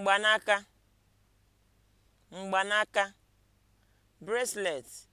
mgbanaka mgbanaka bracelet